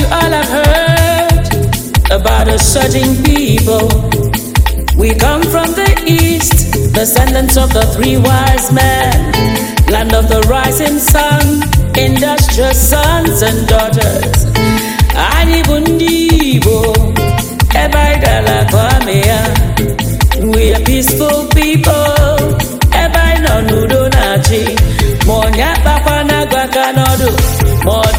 you all have heard about us certain people. We come from the east, descendants of the three wise men, land of the rising sun, industrious sons and daughters. Anyị bụ Igbo, mee We are peaceful people.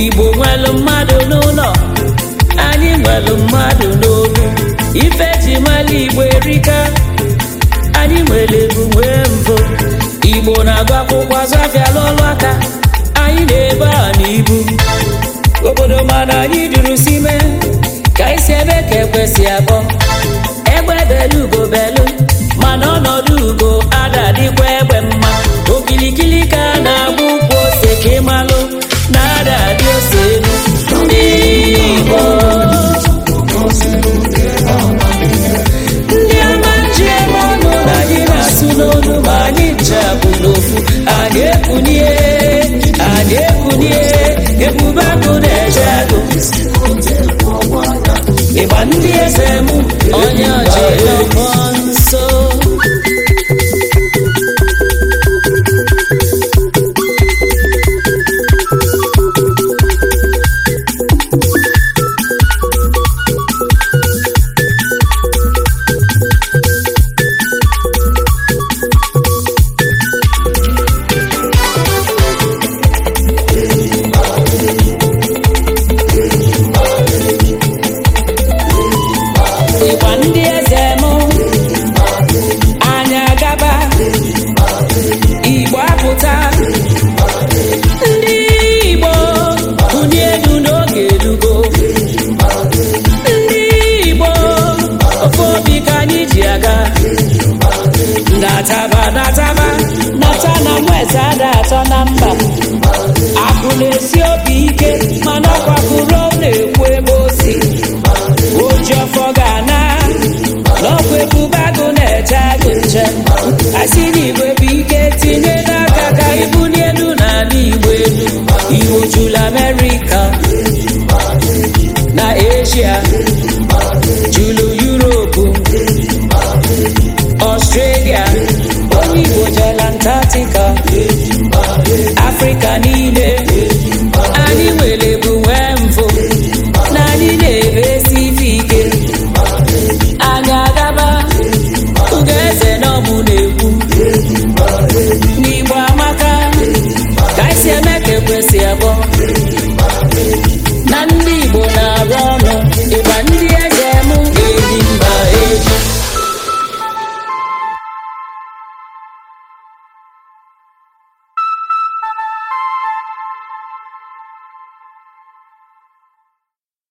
igbo nwelu mmadụ n'ụlọ anyị nwelu mmadụ n'obu ife ji mala igbo erika anyị nwere ebu nwee mbụ igbo na-agụ akwụkwọ azụ afịa n'ọlụ aka anyị na-ebe a n'ibu obodo mana anyị duru sime ka anyị si ebe ka ekwesị abụ ọnụ ma anyị nchapụ n'ofu anyị ekunie anyị ekunie ebube agụ na-eje agụ ịgba ndị eze m ịgba ndị Central America na Asia